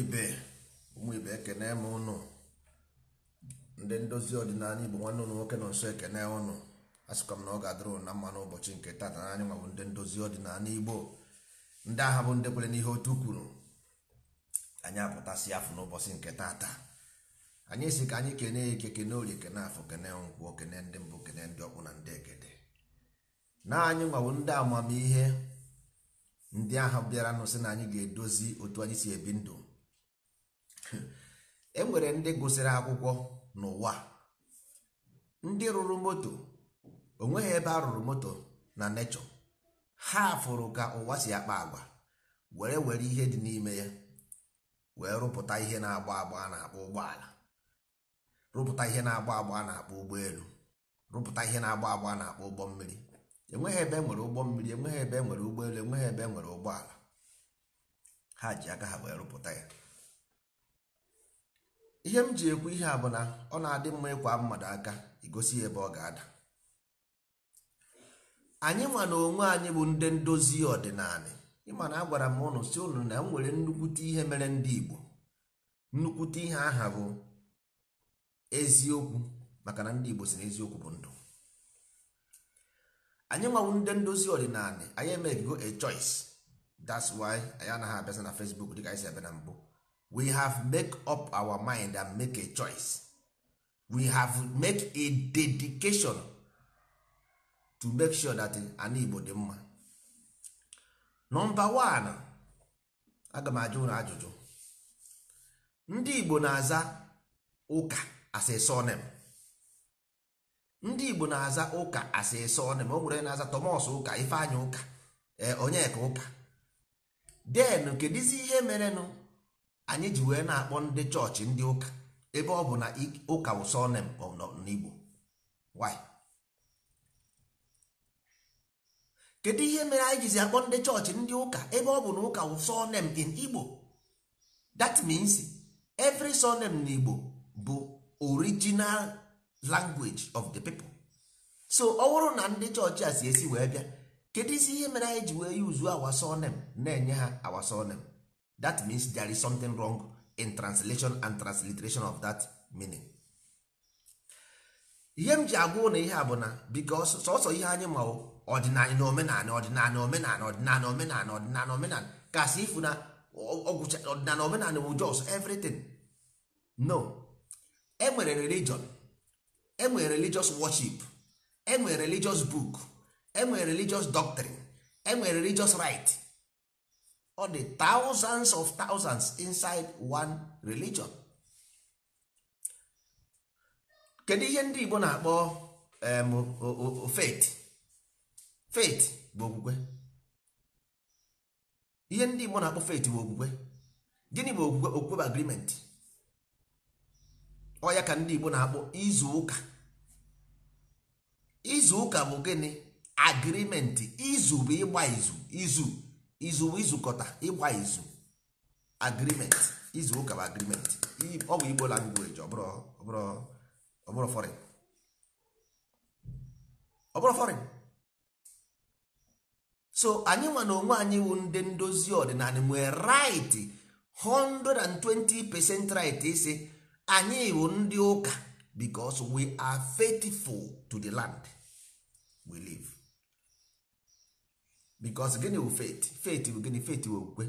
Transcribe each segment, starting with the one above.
ibe ụmụ ibe ekene m ụnụ ndị ndozi ọdịnala igbo nwanne ụnụ nwoke nọ nso ekene ụnụ asịkwa m na ọ ga-adịrị ụnụ na mma n'ụbọchị nke tata na anyị nwabụ ndị ndozi ọdịnala igbo ndị agha bụ ndị kwere n'ihe otu kwuru anyị apụtasị afọ n'ụbọchị nke tata anyị si ka anyị kene ike kene orie kene afọ kene nkwụ kene ndị mbụ kene ndị ọkpụ na ndị ekede na anyị nwabụ ndị amamihe ndị agha bịara nụ sị na anyị ga-edozi otu anyị si ebi ndụ enwere ndị gụsịrị akwụkwọ n'ụwa ndị rụrụ moto onweghị ebe a rụrụ moto na nechọ ha fụrụ ka ụwa si akpa agwa were were ihe dị n'ime ya wee rụpụta ihe na-agba agba a na-akpọ ụgbọala rụpụta ihe na-agba agba a na-akpọ ụgbọelu rụpụta ihe na-agba agba a na-akpọ ụgbọ mmiri enweghị ebe e nwere ụgbọ mmiri enweghị ebe e nwere ụgbọelu enweghị ebe enwere ụgbọala ha ji aka ha wee rụpụta ya ihe m ji ekwu ihe a bụ na ọ na-adị mma ịkwa mmadụ aka igosi ebe ọ ga-ada anyị nwa na onwe anyị bụ ndị ndozi ọdịnala ịma na agwara m ụnụ si ụnụ na m nwere nnukwute ihe mere ndị Igbo nnukwute ihe aha bụ eziokwu maka na ndị Igbo si na eziokwu bụ ndụ anyị nwawu ndị ndozi ọdịnala anyị emeghịgo a choice that's why anyị anaghị abịaza na Facebook dịka anyị si abịa na mbụ we have make up our mind and make a choice we have make a dedication to make sure that an igbo dị mma nọmba one aga m ajụ ụlọ ajụjụ ndị igbo na-aza ụka as a ndị igbo na-aza ụka as a o nwere na-aza Thomas ụka Ifeanyị ụka eh, onyeka ụka den kedizi ihe merenụ anyị ji wee na-akpọ ndị chọọchị ndị ụka ebe ọ bụ na ụka wụsọnem n'igbo kedu ihe mere anyị jizi akpọ ndị chọọchị ndị ụka ebe ọ bụ na ụka wụsọnem in igbo that means every surname n'igbo bụ original language of the people so ọ bụrụ na ndị chọọchị a si esi wee bịa kedu isi ihe mere anyị ji wee yuzu awa surname na-enye ha awa that means there is something wrong in translation and transliteration of that meaning ihe m ji agwa na ihe a bụ na because sọsọ ihe anyị ma ọdịnala na omenala ọdịnala omenala ọdịnala omenala ọdịnala omenala kasị ifu na ọgwụcha ọdịnala omenala bụ jos everything no enwere religion enwere religious worship enwere religious book enwere religious doctrine enwere religious right ọ dị thousands of thousands inside one religion kedu ihe ndị Igbo na-akpọ faith faith bụ okwukwe ihe ndị Igbo na-akpọ faith bụ okwukwe gịnị bụ okwukwe okwukwe bụ agreement ọ ya ka ndị Igbo na-akpọ izu ụka izu ụka bụ gịnị agreement izu bụ ịgba izu izu izu izukọta ịgba izu agreement izu ụka bụ agreement ọ bụ igbo language ọbụrụ foreign foreign so anyị nwa na onwe anyị wụ ndị ndozi ọdịnala nwee right 120 percent right isi anyị wụ ndị ụka because we are faithful to the land we live. because gịnị bụ faith faith bụ gịnị faith bụ okwukwe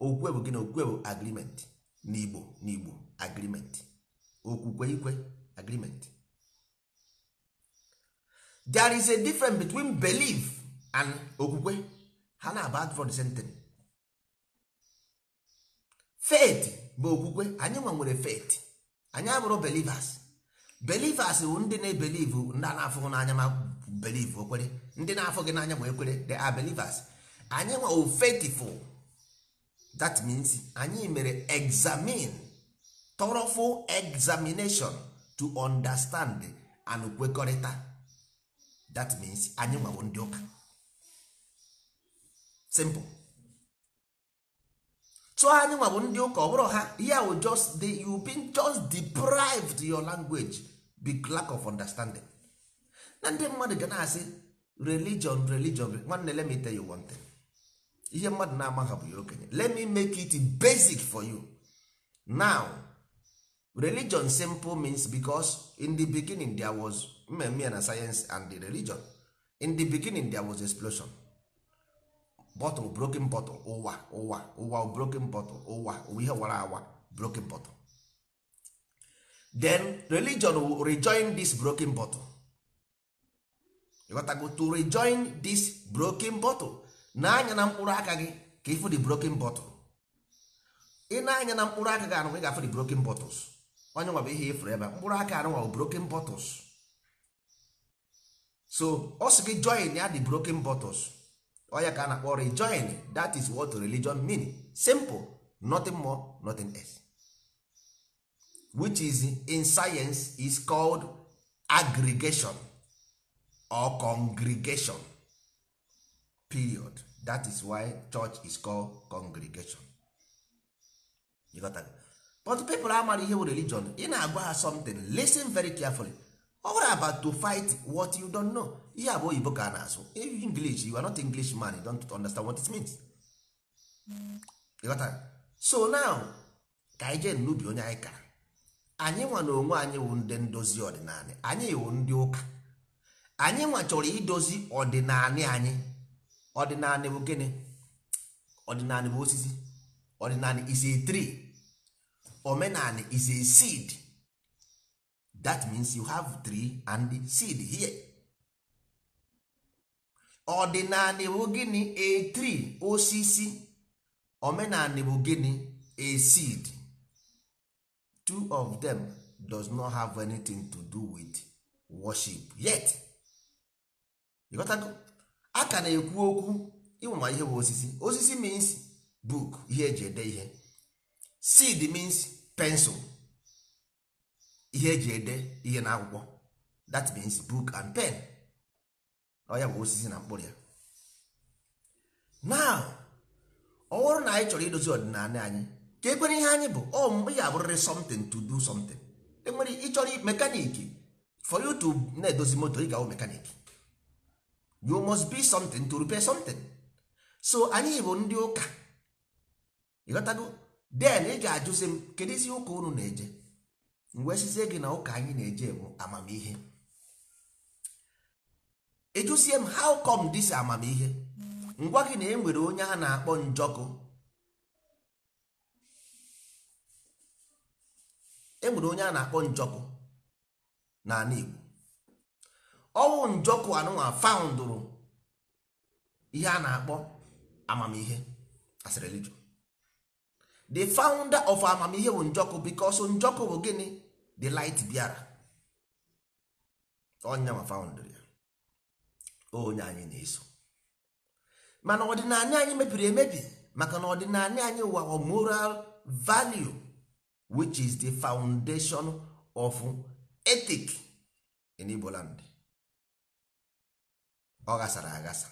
okwukwe bụ gịnị okwukwe bụ agreement n'igbo n'igbo agreement okwukwe ikwe agreement there is a difference between belief and okwukwe ha na aba for the same thing faith bụ okwukwe anyị nwa nwere faith anyị abụrụ believers believers bụ ndị na-ebelieve ndị a na-afụhụ n'anya ma believe okwere ndị na-afọ gị n'anya ma ekwere they are believers anyị nwa oh, faithful that means anyị mere examine thorough examination to understand and kwekọrịta that means anyị nwawo ndị ụka simple so anyị nwa ndị ụka ọ bụrụ ha ihe ahụ just the you been just deprived your language big lack of understanding na ndị mmadụ ga na-asị religion religion nwanne let me tell you one thing ihe mmadụ na-amaghị bụ ya okenye let me make it basic for you now religion simple means because in the beginning there was mmemme na science and the religion in the beginning there was explosion bottle broken bottle ụwa ụwa ụwa broken bottle ụwa ihe wara awa broken bottle then religion will rejoin this broken bottle ịghọtago to rejoin this broken bottle na-anya na mkpụrụ aka gị ka ịfụ the broken bottle ị na-anya na mkpụrụ aka gị anụ ị ga-afụ the broken bottles onye nwa bụ ihe ịfụrụ ebe mkpụrụ aka anụ nwa bụ broken bottles so ọ sị gị join ya the broken bottles ya ka a na-akpọ rejoin that is what religion mean simple nothing more nothing else which is in science is called aggregation or congregation period that is why church is called congregation you got that? but people amara ihe religion ị na-agwa ha something listen very carefully over about to fight what you don't know ihe abụ oyibo ka a na-asụ english you are not english man you don't understand what it means you got so now ka anyị jee n'ubi onye anyị kara anyị nwa na onwe anyị wụ ndị ndozi ọdịnala anyị wụ ndị ụka anyị nwa idozi ọdịnala anyị ọdịnala bụ gịnị ọdịnala bụ osisi ọdịnala is a tree omenala is a seed that means you have tree and seed here ọdịnala bụ gịnị a tree osisi omenala bụ gịnị a seed two of them does not have anything to do with worship yet ịghọtago a ka na-ekwu okwu ịwụma ihe bụ osisi osisi means book ihe eji ede ihe seed means pencil ihe eji ede ihe na akwụkwọ that means book and pen ọya bụ osisi na mkpụrụ ya now ọ bụrụ na anyị chọrọ idozi ọdịnala anyị ka ekwere ihe anyị bụ ọ oh, ya abụrịrị something to do something enwere ịchọrọ mekaniki for you to na-edozi moto ị ga-awụ mekaniki you must be something to repair something so anyị bụ ndị ụka ịghọtago den ị ga-ajụzi m isi ụka unu na-eje mgbe sizie gị na ụka anyị na-eje bụ amamihe ịjụsie m how come dis amamihe ngwa gị na e nwere onye ha na-akpọ njọkụ enwere onye a na-akpọ njọkụ n'ala Igbo Ọnwụ njọkụ anụnwa faụndụrụ ihe a na-akpọ amamihe as a religion the founder of amamihe bụ njọkụ because njọkụ bụ gịnị the light bịara onye ma foundry ya onye anyị na-eso mana ọdịnala anyị mebiri emebi maka na ọdịnala anyị wụwa moral value which is the foundation of ethic in Igbo land ọ agasa aghasa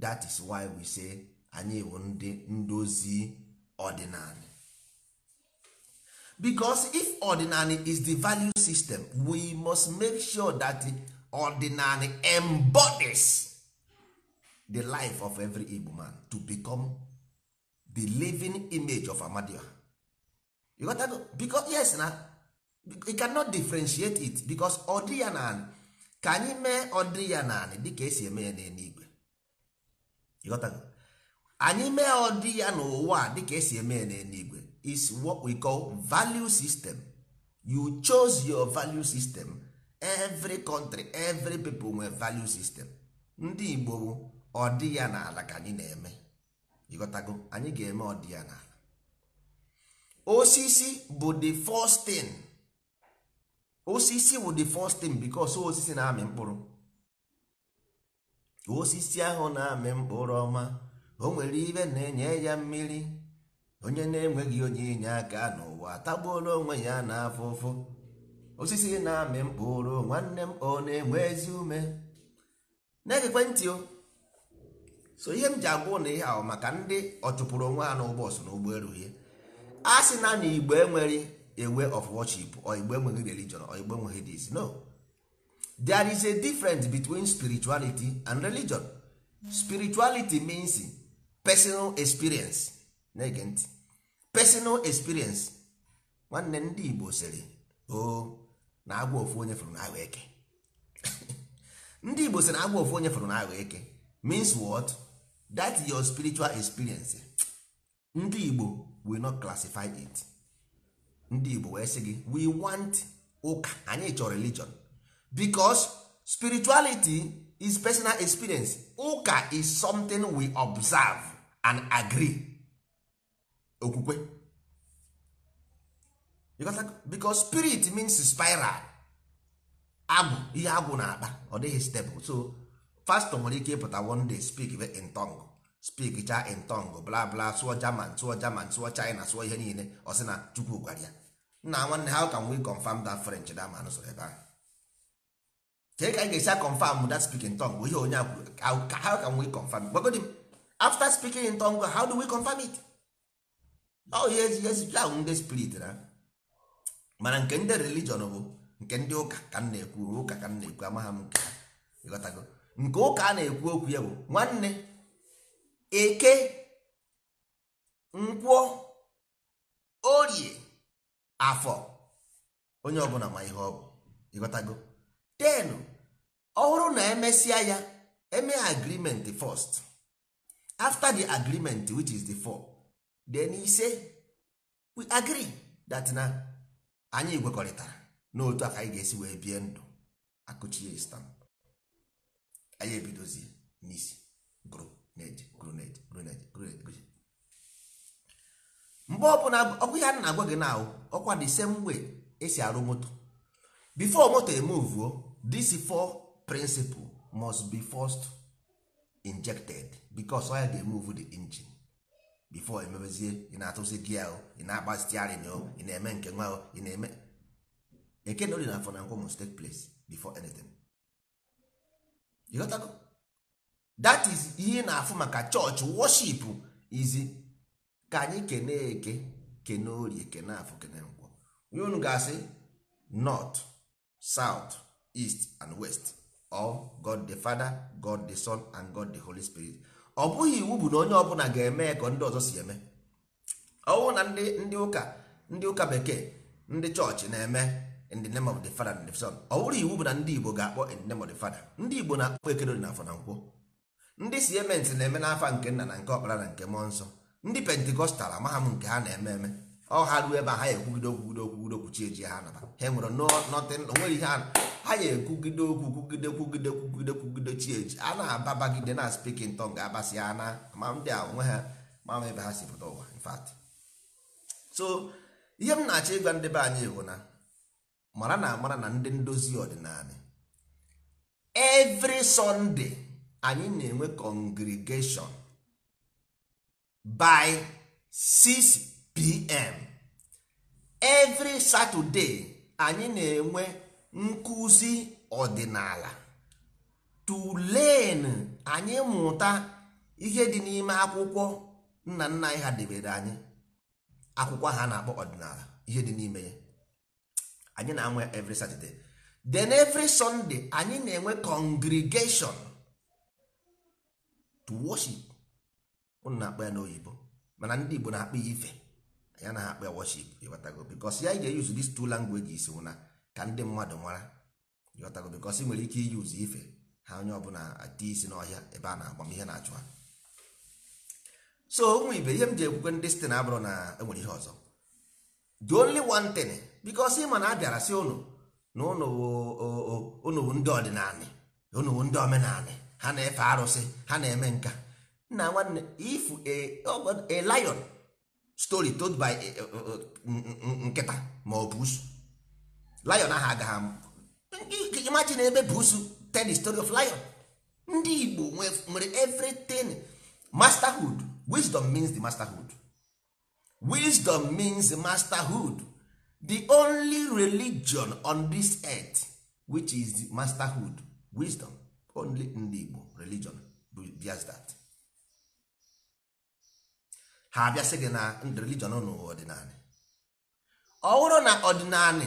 that is why we say anyị bụ ndị ndozi ordinary because if ordinary is the value system we must make sure that the ordinary embodies the life of every Igbo man to become the living image of Amadioha you got that? because yes na you cannot differentiate it because ordinary. ka anyị mee ọdị ya dị dịka esi eme ya n'eluigwe anyị mee ọdị ya n'ụwa dịka esi eme ya n'eluigwe is what we call value system you chose your value system every country every people nwe value system ndị Igbo ọdị ya n'ala ka anyị na-eme ịghọtago anyị ga-eme ọdị ya n'ala osisi bụ the first thing osisi wụ the first thing because osisi na-amị mkpụrụ osisi ahụ na-amị mkpụrụ ọma o nwere ibe na-enye ya mmiri onye na-enweghị onye inye aka n'ụwa tagbuola onwe ya na-afụ ụfụ osisi na-amị mkpụrụ nwanne m ọ na-enwe ezi ume na-egekwe ntị o so ihe m ji agwụ na ihe ahụ maka ndị ọ chụpụrụ onwe ha n'ụgbọsụ na ụgbọelu ihe a sị na igbo enweghị. a way of worship or igbo enweghị religion or igbo enweghị this no there is a difference between spirituality and religion spirituality means personal experience na-ege ntị personal experience nwanne oh, ndị igbo sịrị o na agwa ofu onye fụrụ n'ahụ eke ndị igbo sịrị na agwa ofu onye fụrụ n'ahụ eke means what that your spiritual experience ndị igbo will not classify it ndị Igbo wee sị gị we want ụka anyị chọrọ religion because spirituality is personal experience ụka is something we observe and agree okwukwe because spirit means spiral agwụ ihe agwụ na-akpa ọ dịghị stable so pastor nwere ike ịpụta one day speak in tongue speak cha in tongue bla bla sụọ German sụọ German sụọ China sụọ ihe niile ọ sị na Chukwu gwara ya nna nwanne how can we confirm that french da ma nụsọrọ ebe ahụ kee ka ị ga-esi confirm that speaking tongue bụ ihe onye akwuru how can we confirm gbagodi after speaking in tongue how do we confirm it oh yes yes ya ahụ ndị spirit na mana nke ndị religion bụ nke ndị ụka ka m na-ekwu ụka ka m na-ekwu amaghị m nke ịghọtago nke ụka a na-ekwu okwu ya bụ nwanne eke nkwọ orie afọ onye ọbụla ma ihe ọ bụ ịghọtago ten ọhụrụ na emesịa ya eme agreement fọst after the agreement which is the four then ise we agree that na anyị gwekọrịtara n'otu aka anyị ga-esi wee bie ndụ akụchie stamp anyị ebidozie n'isi gụrụ neje gụrụ neje gụrụ mgbe ọbụla ọkwa ihe a na-agwa gị na ọkwa the same way esi arụ moto bifo moto emuvuo this four principle must be first injected because oil ga-emove the engine before emebezie ị na-atụzi gi ahụ ị na-agba stiarin na ị na-eme nke nwa o ị na-eme eke dị na afọ na nkwọ must take place before anything ịghọtago that is ihe na-afụ maka chọọchị worship izi ka anyị kene eke kene orie kene afọ kene nkwọ unu ga-asị north south east and west or god the father god the son and god the holy spirit ọ bụghị iwu bụ na onye ọbụla ga-eme ka ndị ọzọ si eme ọnwụ na ndị ụka ndị ụka bekee ndị chọọchị na-eme in the name of the father and the son ọ bụrụ iwu bụ na ndị igbo ga-akpọ in the name of the father ndị igbo na-akpọ ekedori na afọ na nkwọ ndị siementi na-eme n'afa nke nna na nke ọkpara na nke mmụọ nsọ ndị pentikọstal amaghị m nke ha na-eme eme ọ ha ruo ebe a ha ekwugide okwugide okwugide okwu eji ha naba ha nwere onweghị ihe ha ya ekwugide okwu kwugide kwugide kwugide kwugide chi a na-ababagide na spikin ga-abasi ha na ma ndị a onwe ha ma ebe ha si pụta ụwa infat so ihe m na-achọ ịgwa ndị be anyị bụ na mara na amara na ndị ndozi ọdịnala evri sọnde anyị na-enwe kọngrigeshon by 6 pm every saturday anyị na-enwe nkụzi ọdịnala tulen anyị mụta ihe dị n'ime akwụkwọ nna nna anyị ha debere anyị akwụkwọ ha na-akpọ ọdịnala ihe dị n'ime ya anyị na-anwe every saturday then every sunday anyị na-enwe congregation to worship ụnụ na-akpọ ya n'oyibo mana ndị Igbo na-akpọ ya ife ya na-akpọ ya worship ịghọtago bikos ya ga-eyuzu dis two languages na ka ndị mmadụ mara ịghọtago bikos ị nwere ike iyuzu ife ha onye ọbụla adị isi n'ọhịa ebe a na-agba m ihe na-achụ ha so ụmụ ibe ihe m ji ekwukwe ndị site na abụrụ na enwere ihe ọzọ the only one thing bikos ị ma na a bịara si ụnụ na ụnụ bụ ndị ọdịnala ụnụ bụ ndị omenala ha na-efe arụsị ha na-eme nka nna nwanne if oh, a lion story told by nkịta ma ọ busu lion ahụ agaghị imagine ebe busu tell the story of lion ndị igbo nwere everything masterhood wisdom means the masterhood wisdom means masterhood the only religion on this earth which is the masterhood wisdom only ndị igbo religion just that ha abịasị gị na ndụ religion unu ọdịnanị ọ bụrụ na ọdịnanị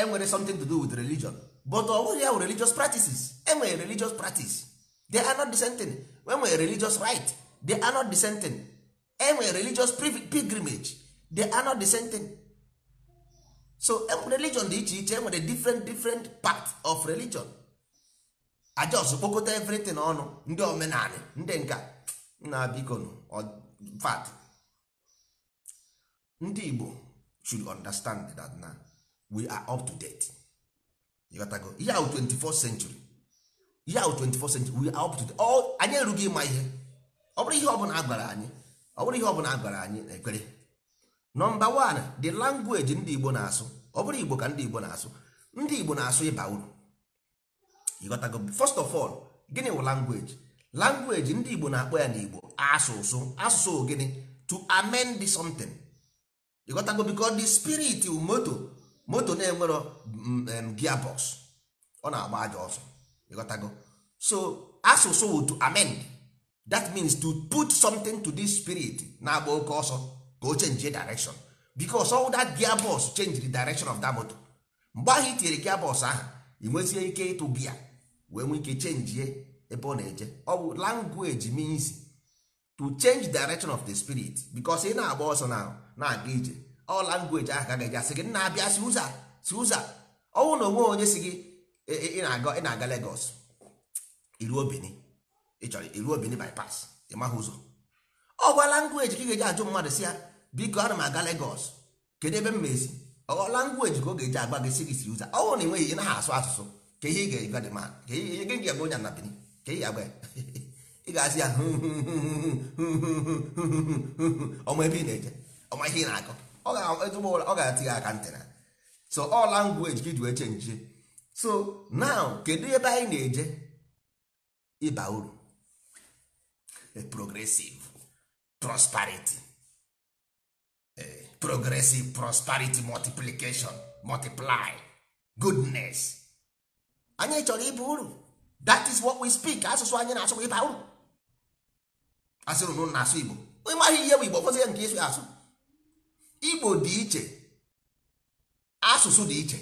enwere something to do with religion but ọ bụghị ya religious practices enwere religious practice they are not the same thing enwere religious right they are not the same thing enwere religious pilgrimage they are not the same thing so e, religion dị iche iche enwere different different part of religion ajos kpokọta everything ọnụ ndị omenanị ndị nka na biko fat ndị igbo should understand that na we are up to date ịghọtago ihe ahụ 24th century ihe ahụ 24 century we are up to date anyị erughị ịma ihe ọ bụrụ ihe ọbụla a gwara anyị ọ bụrụ ihe ọbụla a anyị ekpere nọmba 1 the language ndị igbo na-asụ ọ bụrụ igbo ka ndị igbo na-asụ ndị igbo na-asụ ịba uru ịghọtago first of all gịnị wụ language language ndị igbo na-akpọ ya n'igbo asụsụ asụsụ gịnị to amend something ịghọtago biko the spirit moto moto na-enwero mm, gia bos ọ na-agba aja ọsọ ịghọtago so asụsụ wụ to amend that means to put something to this spirit na-agba oke ọsọ ka o change direction because all that gia box change the direction of that moto mgbe ahụ tinyere gia ahụ ị ike ịtụ gia wee nwee ike chenjie ebe ọ na-eje ọ bụ language means to change direction of the spirit because ị na-agba ọsọ na na-aga ije ọ langweji ahụ ka ga-eji asị gị nna abịa si ụza si ụza ọnwụ na onwe onye si gị ị na-aga Legos. na-aga Lagos iruo Benin ị chọrọ iruo Benin bypass ị maghị ụzọ ọ gwa langweji ka ị ga-eji ajụ mmadụ si ya biko ana m aga Legos. kedu ebe m mezi ọ langweji ka ọ ga-eji agba gị si gị si ụza ọnwụ na enweghị ị naghị asụ asụsụ ka ihe ị ga-ega dị ma ka ihe gị ga-agba onye na Benin ka ị ga-agba ị ga-asị ya ọmụ ebe ị na-eje Ọ ihe ị na-akọ ọ ga-ezigbo ọ ga atịghị aka ntị na so ọ language gị wee chenjie so now kedu ebe anyị na-eje ịba uru progressive prosperity progressive prosperity multiplication multiply goodness anyị chọrọ ịba uru that is what we speak asụsụ anyị na-asụ ịba uru asịrụ na asụ igbo ịmaghị ihe bụ igbo ya nke ịsụ asụ igbo dị iche asụsụ dị iche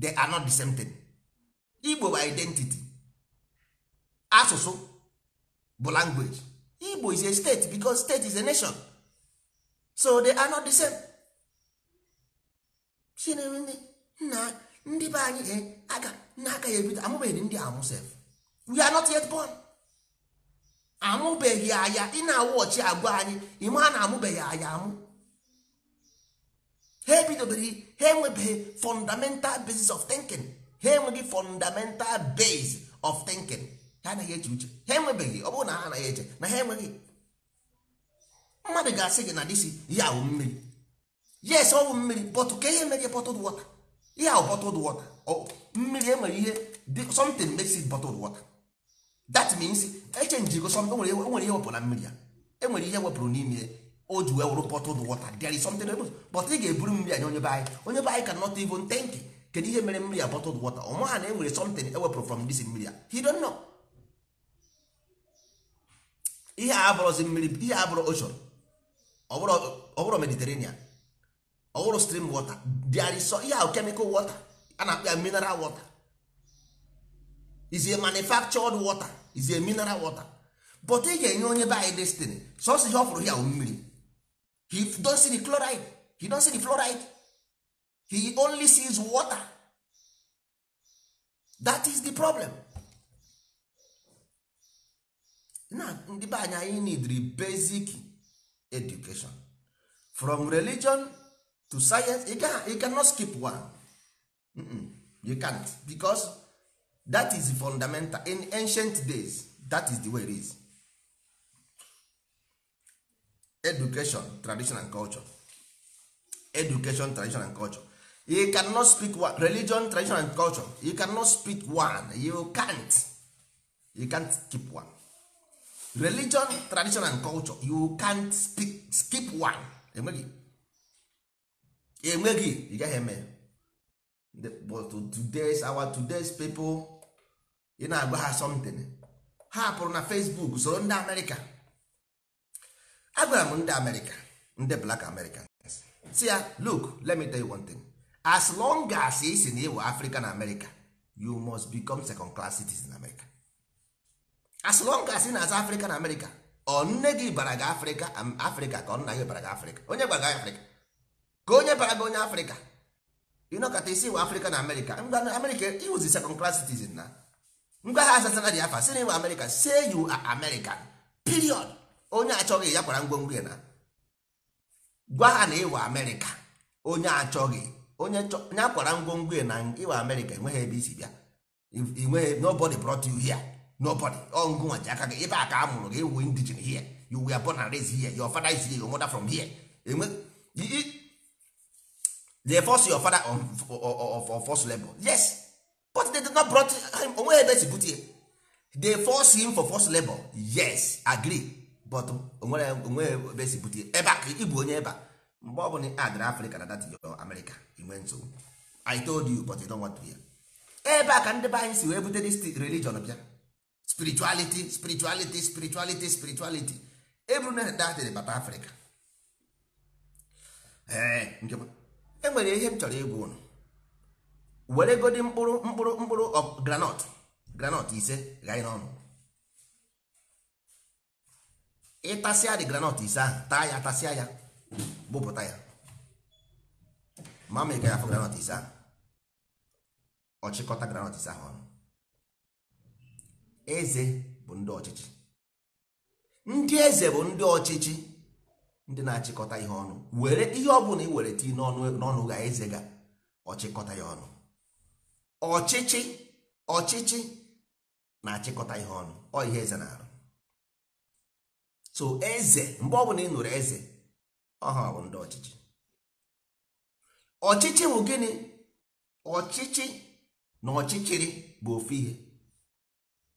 they are not the same thing igbo bụ identity asụsụ bụ language igbo is a state because state is a nation so they are not the same chinere nna ndị be anyị eh, aga nna -aga ya ebido amụbeghị ndị amụ sef we are not yet born amụbeghị anya ị na-awụ ọchị agwa anyị ime a na-amụbeghị anya amụ ha ebidobere ha enwebeghị fundamental basis of thinking ha enweghị fundamental base of thinking ha anaghị eche uche ha enwebeghị ọ bụrụ na ha anaghị eche na ha enweghị mmadụ ga-asị gị na disi ihe awụ mmiri yes ọ bụ mmiri bọtụ ka ihe mere ihe bottled water ihe awụ bottled water mmiri enwere ihe something makes it bottled water that means echenjigo something enwere ihe wepụrụ na mmiri ya enwere ihe wepụrụ n'ime o ji wee wụrụ bottled water there is something else but ị ga-eburu mmiri anya onye be anyị onye be anyị cannot even think kedu ihe mere mmiri a bottled wọta ọ ha na enwere something ewepụrụ from this mmiri a he don't know ihe a abụrụzi mmiri ihe abụrụ ocean ọ bụrụ mediterranean ọ bụrụ stream water there is ihe ahụ chemical wọta a na-akpọ ya mineral wọta. is a manufactured water is a mineral wọta but ị ga-enye onye be anyị destiny sọsọ ihe ọ fụrụ ya mmiri he don't see the chloride he don't see the fluoride he only sees water that is the problem na ndị be anyị anyị need basic education from religion to science you, can, cannot skip one mm -mm, you can't because that is fundamental in ancient days that is the way it is education tradition and culture education tradition and culture you cannot speak one religion tradition and culture you cannot speak one you can't you can't keep one religion tradition and culture you can't speak, skip one enweghị enweghị ị gaghị eme but today's our today's people ị na-agba ha something ha pụrụ na Facebook soro ndị Amerịka agwara m ndị amerịka ndị black americans si ya look let me tell you one thing as long as ị si na ịwụ african america you must become second class citizen in america as long as ị na-aza african america ọ nne gị bara gị afrịka um, afrịka ka ọ nna gị bara gị afrịka onye bara gị afrịka ka onye bara gị onye afrịka ịnọkọta isi ịwụ afrịka na amerịka ngwa amerịka iwụzi second class citizen na ngwa ha asasana dị afa si na ịwa America say you are american period onye achọghị ya kwara ngwongwo ya na gwa ha na ịwa amerịka onye achọghị onye ya kwara ngwongwo ya na ịwa amerịka enweghị ebe isi bịa inweghị nobody brought you here nobody ọngụnwa ji aka gị ebe a ka a mụrụ gị ewu indigen here you were born and rez here your fada is here your mother from here enwe they force your father on, on, on forced labor yes but they did not brought him onweghị ebe e si bute they force him for forced labor yes agree but onweghị ebe esi bute ebe ka ịbụ onye ba mgbe ọ bụla adara afrịka na dati yo amerịka inwe nsogbu i told you but you don't want to hear ebe a ka ndị be anyị si wee bute dis religion bịa spirituality spirituality spirituality spirituality eburu na datịrị papa afrịka e nwere ihe m chọrọ ịgwa ụnụ were godi mkpụrụ mkpụrụ mkpụrụ granọt granọt ise gha n'ọnụ ịtasịa dị granọt ise ahụ taa ya tasịa ya bụpụta ya ma ma ịga ya afọ granọt ise ahụ ọchịkọta granọt ise ahụ ọnụ eze bụ ndị ọchịchị ndị eze bụ ndị ọchịchị ndị na-achịkọta ihe ọnụ were ihe ọ bụla ị were tii n'ọnụ ga eze ga ọchịkọta ya ọnụ ọchịchị ọchịchị na-achịkọta ihe ọnụ ọ ihe eze na-arụ so eze mgbe ọbụla ị nụrụ eze ọha bụ ndị ọchịchị ọchịchị bụ gịnị ọchịchị na ọchịchịrị bụ ofu ihe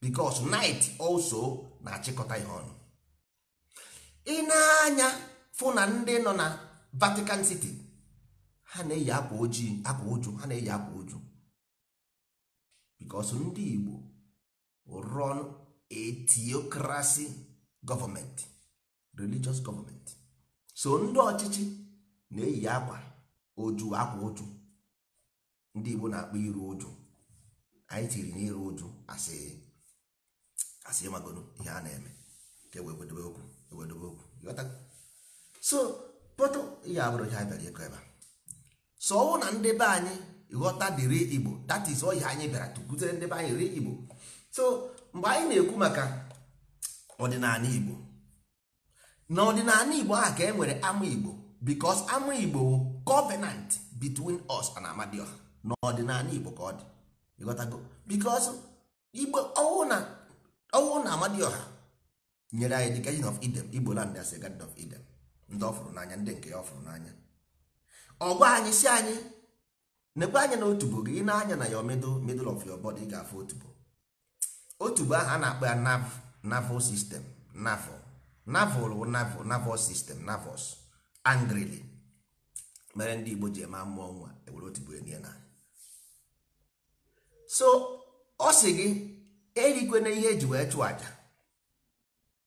biko night also na-achịkọta ihe ọnụ ị na-anya fụ na ndị nọ na Vatican City ha na-eyi akwa ojii akwa uju ha na-eyi akwa uju bikos ndị Igbo run etiokrasi. gọọmenti religious Government so ndị ọchịchị na-eyi akwa oju akwa oju ndị Igbo na-akpọ iru uju anyị tiri n'iru iru asị asị magodo ihe a na-eme ka ewedebe okwu ewedebe okwu so pọtụ ihe abụrụ ihe anyị bịara ịkọ ebe a so ọwụ na ndị be anyị ghọta dịrị Igbo that is ọ anyị bịara tụkutere ndị be anyị ri Igbo so mgbe anyị na-ekwu maka ọdịnala igbo na ọdịnala igbo a ka e nwere ama igbo because ama igbo covenant between us and amadioha na ọdịnala igbo ka ọ dị ịghọtago because igbo ọwụ na amadioha nyere anyị dị garden of Eden igbo land as a garden of Eden ndị ọ fụrụ n'anya ndị nke ya ọ fụrụ n'anya ọgwa anyị si anyị nekwe anya na otubo gị ị na-anya na ya middle of your body ị ga-afụ otubo otubo ahụ a na-akpọ ya nav naval sistem naval naval wụ naval naval sistem navals angrili mere ndị igbo ji eme mmụọ nwa ewere otigbu enye na so ọ sị gị erikwana ihe eji wee chụọ aja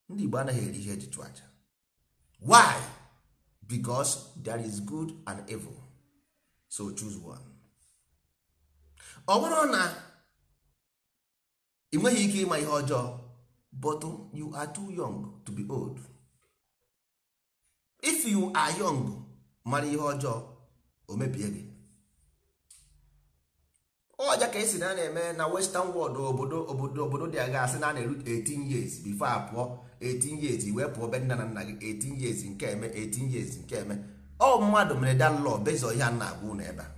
ndị igbo anaghị eri ihe eji chụọ aja why because there is good and evil so choose one ọ bụrụ na ị nweghị ike ịma ihe ọjọọ but you are too young to be old if you are young mara ihe ọjọọ o mebie gị ọja ka esi na na-eme na western world obodo obodo obodo dị aga asị na na-eru 18 years before pụọ 18 years wee pụọ be nna na nna gị 18 years nke eme 18 years nke eme ọ mmadụ mere dan lọ bezọ ihe a na-agwụ n'ebe a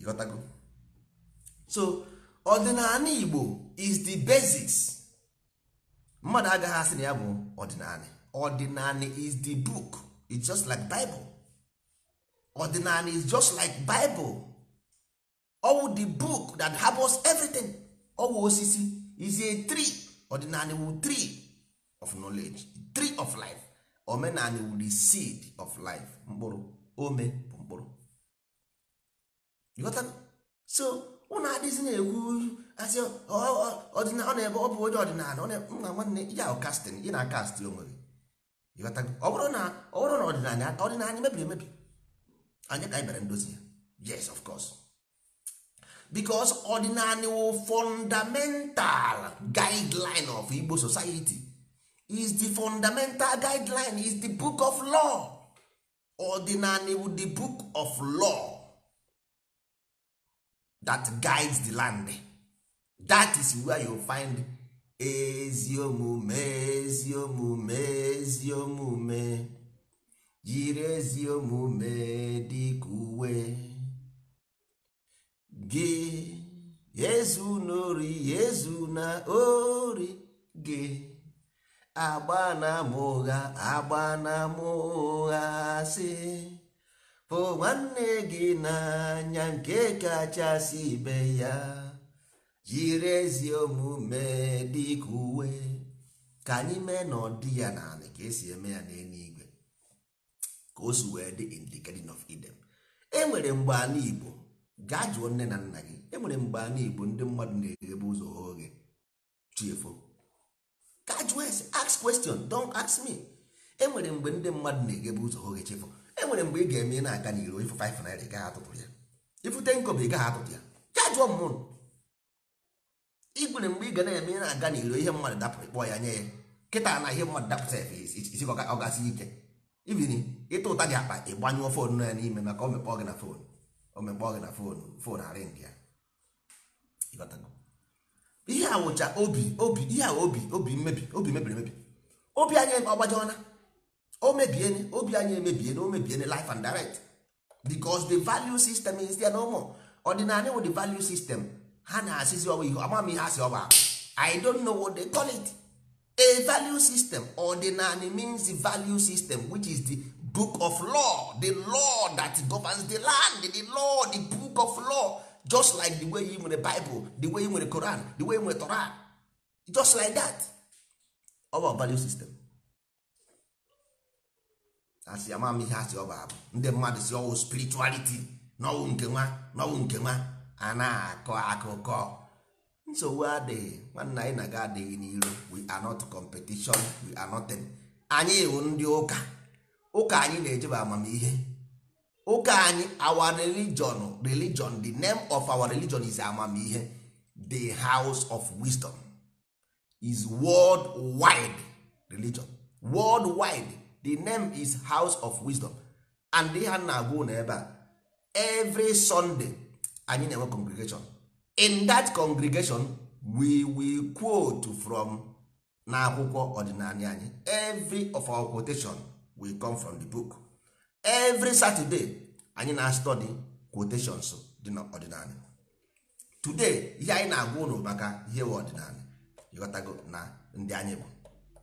ịghọtago so ọdịnala igbo is the basis mmadụ agaghị asị na ya bụ ọdịnala ọdịnala is the book it's just like bible ọdịnala is just like bible ọwụ the book that harbors everything ọwụ osisi is a tree ọdịnala wu tree of knowledge tree of life omenala wu the seed of life mkpụrụ ome bụ mkpụrụ so ụnụ adịghịzị na-ekwu asị ọ na-ebe ọ bụ onye ọdịnala na nwanne ya ahụ kastin ị na kast onwe gị ọ bụrụ na ọdịnala ọdịnala mebiri emebi anyị ka anyị bịara ndozi ya yes of course because ọdịnala wụ fundamental guideline of Igbo society is the fundamental guideline is the book of law ọdịnala wụ the book of law that guides the land that is where you find ezi omume ezi omume ezi omume jiri ezi omume dịka uwe gị ezu na ezu na ori gị agba na ama ụgha agba na ama si. hụ nwanne gị n'anya nke kachasị ibe ya jiri ezi omume dịka uwe ka anyị mee na ọ dị ya n'ala ka esi eme ya n'eluigwe ka o si wee dị in the garden of Eden enwere mgbe ala Igbo gaa jụọ nne na nna gị enwere mgbe ala Igbo ndị mmadụ na-eghebe ụzọ oge chiefo gaa jụọ ese ask question don't ask me enwere mgbe ndị mmadụ na-eghebe ụzọ oge chiefo enwere mgbe ị ga-eme na-aga n'iro ifu 5 naira gaa atụtụ ya ifute 10 ị gaa atụtụ ya ya jụọ mmụrụ igwere mgbe ị ga na-eme na-aga n'iro ihe mmadụ dapụrụ kpọọ ya nye ya kịta na ihe mmadụ dapụta ya ọ gasị ike ibiri ịta ụta gị akpa ịgbanyụọ foonu ya n'ime maka o mekpọọ gị na foonu o mekpọọ gị na foonu foonu arị ndị ya ihe awụcha obi obi ihe a obi obi mmebi obi mebiri emebi obi anya anyị ọgbajọna o mebiene obi anyị emebiene o mebiene life and direct because the value system is there no more ọdịnala wụ the value system ha na-asịzi ọwa ihe ama m ihe asị ọba i don't know what they call it a value system ordinary means the value system which is the book of law the law that governs the land the law the book of law just like the way you nwere bible the way you nwere koran the way you nwere Tora just like that our value system asị ama m ihe asị ọ bụ abụ ndị mmadụ si ọwụ spirituality n'ọwụ nke nwa n'ọwụ nke nwa a na-akọ akụkọ nsogbu adịghị nwanne anyị na-aga adịghị n'iro we are not competition we are nothing anyị wụ ndị ụka ụka anyị na-ejeba amamihe ụka anyị our religion religion the name of our religion is amamihe the house of wisdom is world wide religion world wide the name is house of wisdom and ihe a na-agwa ụlọ ebe a every sunday anyị na-enwe congregation in that congregation we will quote from n'akwụkwọ ọdịnala anyị every of our quotation will come from the book every saturday anyị na-study quotations dị n'ọdịnala today ihe anyị na-agwa ụlọ maka ihe ọdịnala ịghọtago na ndị anyị bụ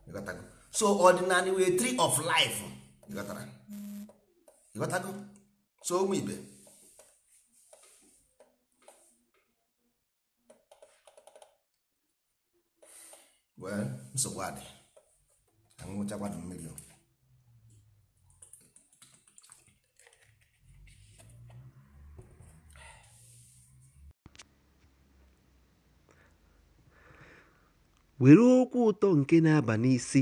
ịghọtago so ordinary wee tree of life ịghọtara ịghọtago so ụmụ ibe wee nsogbu adị anwụchakwanụ mmiri o were okwu ụtọ nke na-aba n'isi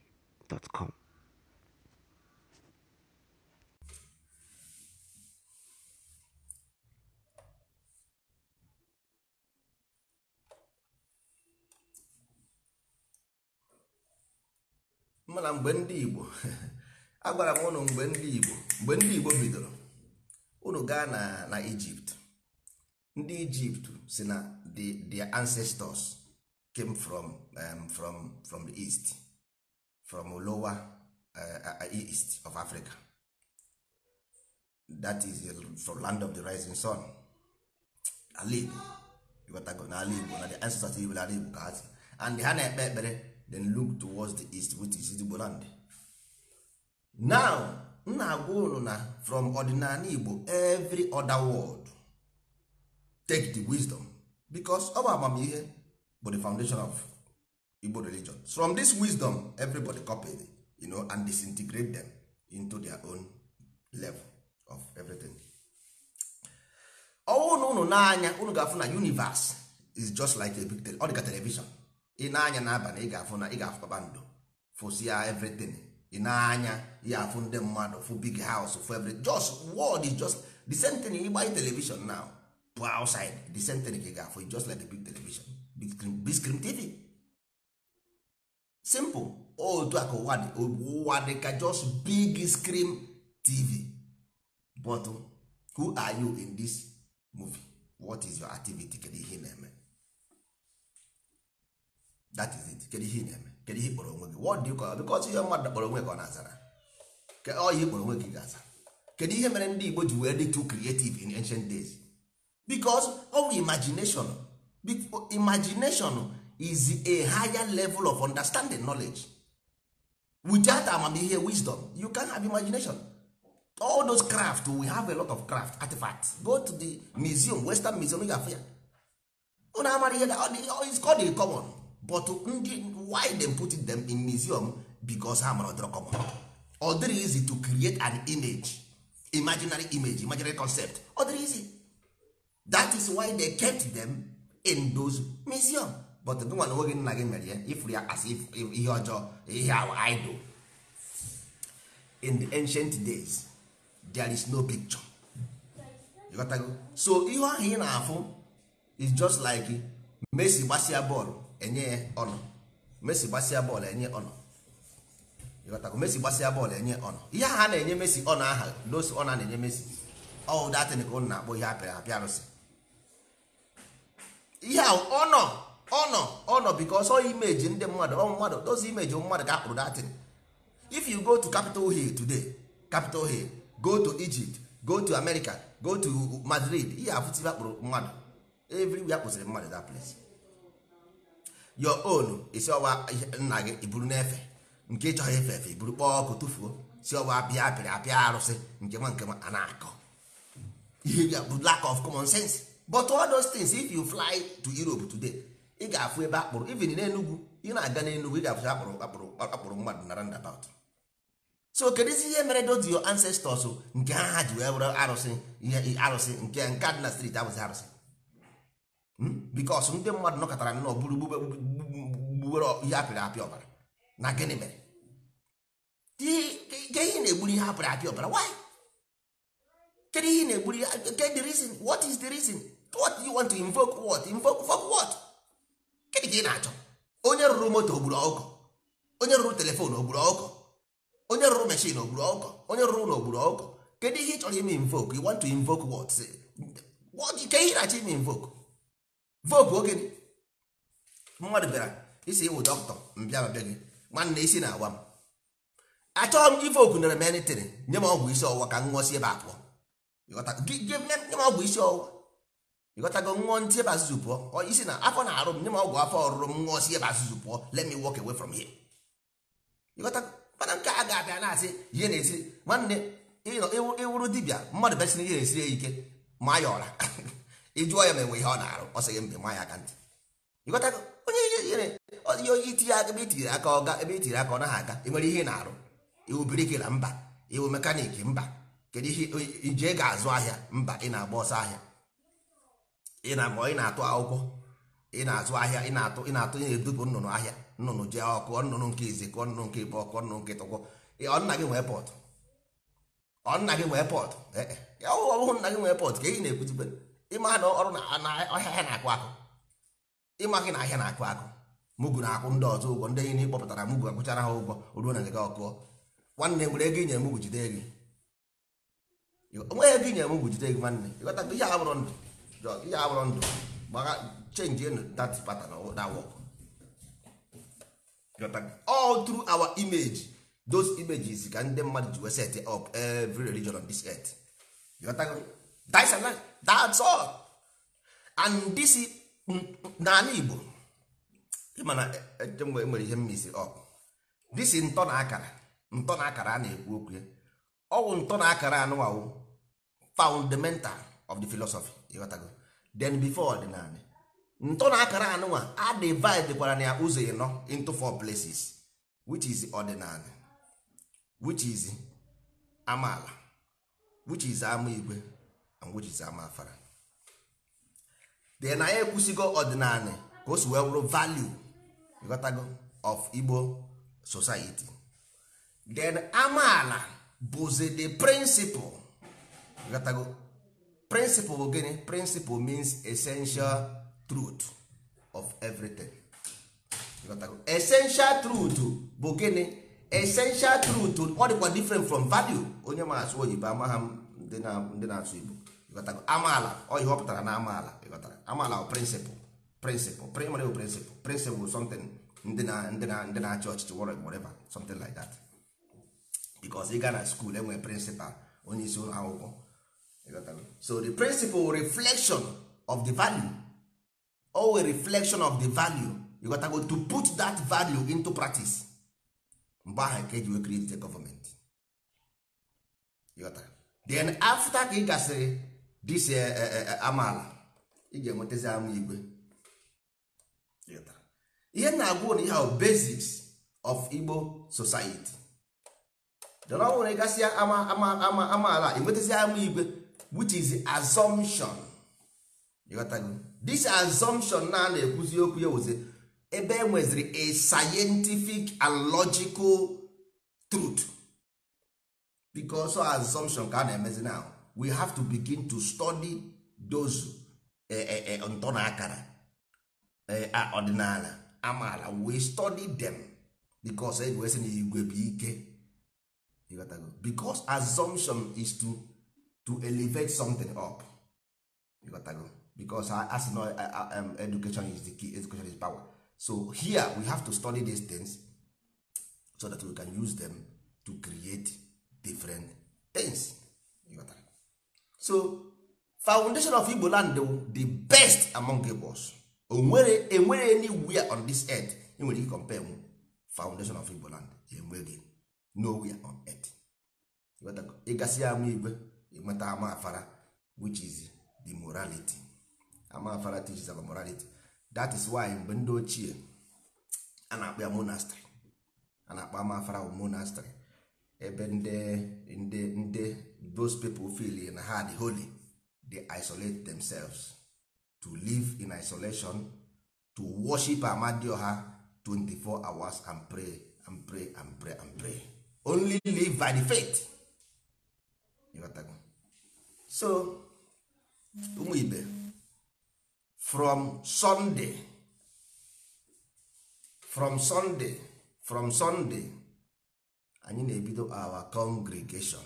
mana mgbe ndị Igbo agwara m ụnụ mgbe ndị Igbo mgbe ndị Igbo bidoro ụnụ gaa na na Ijipt ndị Ijipt si na the their ancestors came from um, from from the east from lower uh, uh, uh, east of africa that is from land of the rising sun ala igbo ịghọtago n'ala igbo na the ancestors igbo n'ala igbo ka asị and ha na-ekpe ekpere then look towards the east which is igbo land now m na-agwa unu na from ordinary igbo every other world take the wisdom because ọ bụ amamihe bụ the foundation of igbo religion from this wisdom everybody copy you know, and disintegrate them into their own level of everything. ọnwụ na n'anya unu ga-afụ na universe is just like a big tele ọ dịka television ị na-anya n'abalị ị ga-afụ na ị ga-afụ bando fụsia everything ị na-anya ya afụ ndị mmadụ fụ big house fụ everything just world is just the same thing ịgbanye television now bụ outside the same thing ka ị ga-afụ just like a big television big screen, big screen TV simple otu a ka ụwa dị ụwa dị ka just big screen tv but who are you in this movie what is your activity kedu ihe na-eme that is it kedu ihe na-eme kedu ihe kpọrọ onwe gị what do you call because ihe mmadụ kpọrọ onwe ka ọ na-azara ọ ihe kpọrọ onwe gị ga-aza kedu ihe mere ndị Igbo ji wee dị too creative in ancient days because ọ bụ imagination imagination is a higher level of understanding knowledge without amamihe wisdom you can have imagination all those craft we have a lot of craft artifacts go to the museum western museum ga afia unu amara ihe is called a common but ndị why dem put them in museum because ha mara common ọ dịrị easy to create an image imaginary image imaginary concept ọ dịrị easy that is why they kept them in those museum but gịnwa na onwe nna gị mere ya ifuru ya as ihe ọjọọ ihe idol in the ancient days there is no picture you got so ihe ahụ ị na-afụ is just like Messi gbasia bọọlụ enye ya ọnụ Messi gbasia bọọlụ enye ọnụ you got Messi gbasia bọọlụ enye ọnụ ihe aha na-enye Messi ọnụ aha n'ose ọnụ a na-enye Messi ọ datịn ka ụnụ na-akpọ ihe apịa apịa arụsị ihe ahụ ọnụ ọ nọ ọ nọ because all imeji ndị mmadụ ọ mmadụ those imeji mmadụ ka akpụrụ datin if you go to capital hill today capital hill go to egypt go to america go to madrid ihe afụtịbe akpụrụ mmadụ everywhere kpụsịrị mmadụ that place your own isi ọwa nna gị iburu n'efe nke ịchọghị efe efe iburu kpọọ ọkụ tụfuo si ọwa apịa apịrị apịa arụsị nke nwa nke nwa a na-akọ ihe bụ lack of common sense but all those things if you fly to europe today ị ga-afụ ebe akpụrụ even n'enugwu ị na-aga n'enugwu ị ga akpụrụ akpụrụ akpụrụ mmadụ na roundabout so isi ihe mere dozi your ancestors nke ha ha ji wee were arụsị arụsị nke nke dị na street abụghị arụsị hmm? bikos ndị mmadụ nọkọtara nnọọ buru ihe apịrị apịa ọbara gịnị ka ị na-achọ onye rụrụ moto ogburu ọkụ onye rụrụ telefon ogburu ọkụ onye rụrụ meshin ogburu ọkụ onye rụrụ ụlọ ogburu ọkụ kedu ihe ị chọrọ ime invoke you want to invoke what ke ihe na-achọ ime invoke voke oge mmadụ e e bịara isi ịwụ dọkịta mbịa mbịa gị nwanne isi e na-awa m achọghị m ivoke nere m enitiri nye m ọgwụ isi ọwụwa ka m ṅụọsi ebe abụọ nye m ọgwụ isi ọwụwa ịghọtago ṅụọ ntị ebe azụzụ pụọ isi na afọ na-arụ m nye m ọgwụ afọ ọrụrụ m ṅụọ si ebe azụzụ pụọ let me walk away from here ịghọtago nke a ga-abịa na-asị ihe na-esi nwanne ịwụrụ dibịa mmadụ na ihe na-esiri ya ike ma ya ọra ịjụọ ya ma enwe ihe ọ na-arụ ọ sịghị mbe ma ya aka ntị ịghọtago onye ihe onye ebe aka aka ọ naghị aga enwere ihe na-arụ iwu biriki na mba iwu mekaniki mba kedu ihe ije ga-azụ ahịa mba ị na-agba ọsọ ahịa ị na ị na-atụ akwụkwọ ị na-azụ ahịa ị na-atụ ị na-atụ ị na nnụnụ ahịa nnụnụ ji ọkụ nnụnụ nke izi kụọ nnụnụ nke ikpe ọkụ nnụnụ nke tọkwọ ọnna gị nwee pọtụ ọnna gị nwee pọtụ ọ bụghị nna gị nwee pọtụ e, ka na-ekwuzigbe ịma na ọrụ na ahịa na-akụ akụ ịma gị na ahịa na-akụ akụ mugu na-akwụ ndị ọzọ ụgwọ jide gị nwanne ịghọta ihe a bụrụ ndụ drug ihe abụrụ ndụ gbara change in that pattern that work all through our image those images ka ndị mmadụ ji wee set up every religion on this earth that's all that's all and this n'ala Igbo ịmana enwere e, e ihe mmisi up this ntọ na akara ntọ na akara a na-ekwu okwu ya ọwụ ntọ na akara anụwawụ fundamental of the philosophy ịghọtago then before ọdịnala ntọ na akara anụnwa a divide na ya ụzọ ịnọ into four places which is ọdịnala which is amaala which is ama igwe and which is ama afara then anyị ekwusigo ọdịnala ka o si wee wụrụ value ịghọtago of Igbo society then amaala bụzi the principle ịghọtago principal bụ gịnị principle means essential truth of everything essential truth bụ gịnị essential truth ọ dịkwa different from value onye ma asụ oyibo amaha m ndị na-asụ igbo amaala ọ amaala ọ pụtara na amaala amaala bụ principle principle primary principle principle something ndị na-achị ọchịchị whatever something like that because ị gaa na school enwe principal onye isi ụlọ akwụkwọ so the principle reflection of the value always reflection of the value you got to go to put that value into practice mgbe ahụ ka eji wee create the government then after ka ị gasịrị this eh, eh, eh, amaala ị ga-enwetazi ama igwe ihe na-agwụ na ihe ahụ basics of Igbo society dọrọ ọnwụrụ gasịa ama ama ama amaala enwetazi ama igwe which is assumption this assumption na na-ekwuzi okwu ya wụzi ebe e nweziri a scientific and logical truth because of assumption ka a na-emezi now we have to begin to study those e, e, e, ntọ na akara ọdịnala amaala we study them because egwesi na igwe bụ ike because assumption is to to elevate something up you because I, as no um, education is the key education is power so here we have to study these things so that we can use them to create different things so foundation of igbo land the best among igbo's onwere enwere anywhere on this earth e nwere ike compare m foundation of igbo land enweghị nowhere on earth ịgasị ama igwe ama afara which is the morality ama afara teaches about morality that is why mgbe ndị ochie a na-akpọ ya monastery a na-akpọ amafara monastery ebe ndị ndị ndị those people feel in ha dị holy they isolate themselves to live in isolation to worship amadi amadioha 24 hours and pray and pray and pray and pray only live by the faith so ụmụ ibe from Sunday from Sunday from Sunday anyị na-ebido our congregation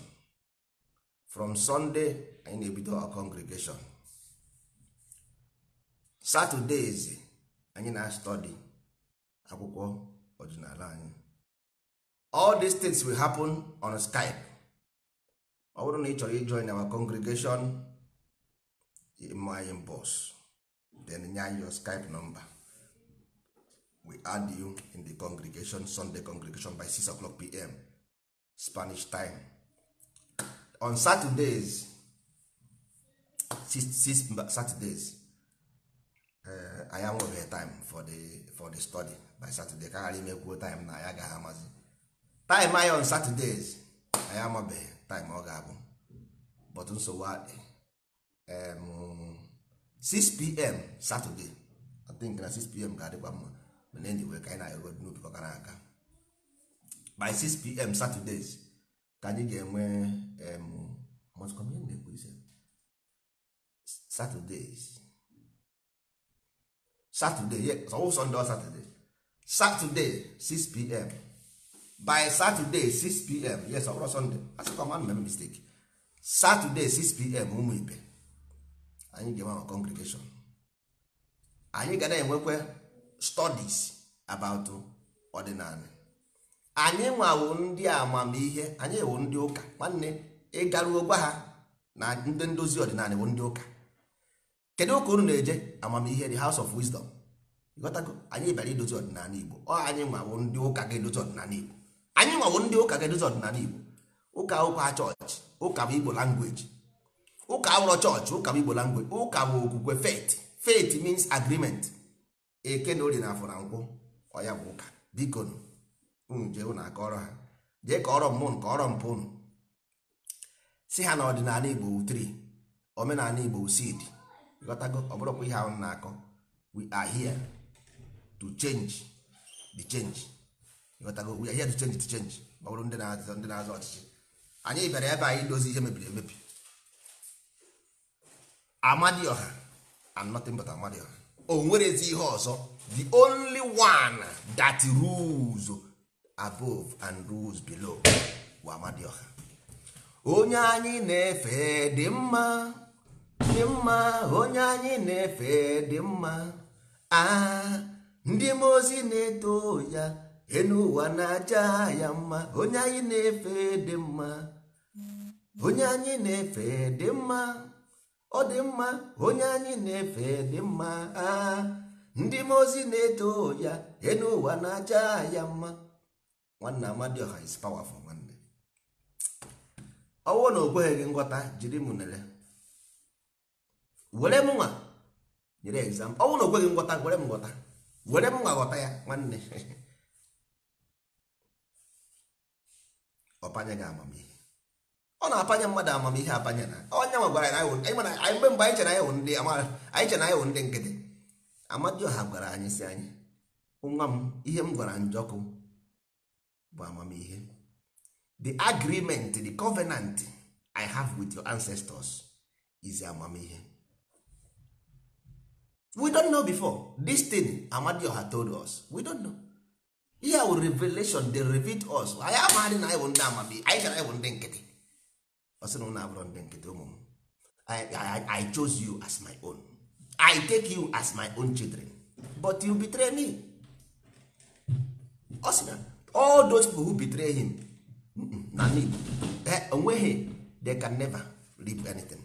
from Sunday anyị na-ebido our congregation Saturdays anyị na-study akwụkwọ ọdịnala anyị all these things will happen on Skype ọ bụrụ na ị chọrọ ijoin our congregation ime anyị mbọs then nye anyị your skype number we add you in the congregation sunday congregation by 6 o'clock pm spanish time on saturdays six, six saturdays anyị uh, time for the, for the study by saturday ka ghara imekwuo time na anyị agaghị amazi time anyị on saturdays anyị amabeghị time ọ ga-abụ but nsogbu adị 6pm Saturday I think na 6pm ga-adịkwa mma mana anyway ka anyị na-eru n'ubi ọ gara aga by 6pm Saturdays ka anyị ga-enwe Saturdays Saturday ọwụ Sunday Saturday Saturday 6pm by saturday 6pm yes ọbụrụ sunday asịkwa m mistake saturday 6pm ụmụ ibe anyị ga-enwe ma congregation anyị ga na-enwekwa studies about ọdịnala anyị nwawo ndị amamihe anyị ewu ndị ụka nwanne ịgaruo gwa ha na ndị ndozi ọdịnala ewu ndị ụka kedu ụka unu na-eje amamihe the house of wisdom anyị bịara idozi ọdịnala igbo ọ anyị nwawo ndị ụka ga-edozi ọdịnala igbo anyị nwawo ndị ụka kedu ụzọ ọdịnala igbo ụka ụka chọọchị ụka bụ igbo langweji ụka awụrọ chọọchị ụka bụ igbo langweji ụka bụ okwukwe faith faith means agreement eke na ori na afọ na nkwụ ọya bụ ụka biko jee ụna aka ha jee ka ọrọ mmụnụ ka ọrọ mpụ ụnụ si ha na ọdịnala igbo tri omenala igbo sid ghọtago ọbụrụkwa ihe ahụ na-akọ wi are here to chenji the change ghọtago ihe to change to change ma bụrụ ndị na-azọ ndị na azụ ọchịchị anyị bịara ebe anyị dozi ihe mebiri emebi amadioha and nothing but amadioha o nwerezi ihe ọzọ the only one that rules above and rules below bụ amadioha onye anyị na-efe dị mma dị mma onye anyị na-efe dị mma a ah, ndị mozi na-eto ya enu na-aja ya mma onye anyị na-efe dị mma onye anyị na-efe dị mma ọ dị mma onye anyị na-efe dị mma aa ah, ndị m ozi na-eto ya enu na-aja ya mma nwanne Amadioha is powerful nwanne ọwụ na o kweghị gị nghọta jiri m nere were m nwa nyere exam ọwụ na o kweghị nghọta were m nghọta were m nwa ghọta ya nwanne ọpanye gị amamihe ọ na-apanye mmadụ amamihe apanya na onye nwa gwara anyị mgbe mgbe anyị chere anyị wụ ndị anyị chere anyị wụ ndị nkịtị amadioha gwara anyị si anyị nwa m ihe m gwara njọkụ bụ amamihe the agreement the covenant i have with your ancestors is amamihe we don't know before this thing amadioha told us we don't know ihe wụ revelation dey reveal us anyị amaghị na anyị bụ ndị amamihe anyị gara anyị bụ ndị nkịtị ọ na ụlọ abụrụ ndị nkịtị ụmụ m I chose you as my own I take you as my own children but you betray me ọ sị na all those people who betray him na me eh, onweghị they can never leave anything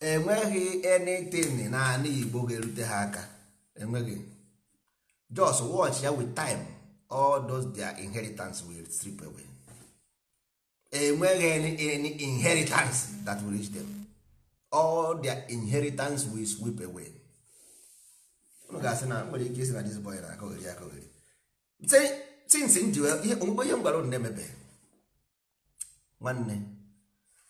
enweghị anything na ana igbo ga-erute ha aka enweghị just watch ya wit time all dia their inheritance will strip away enweghị any, inheritance that will reach them all their inheritance will sweep away unu ga-asị na nwere ike isi na this boy na akọghịrị akọghịrị tinsi nji ihe m onye unu na nwanne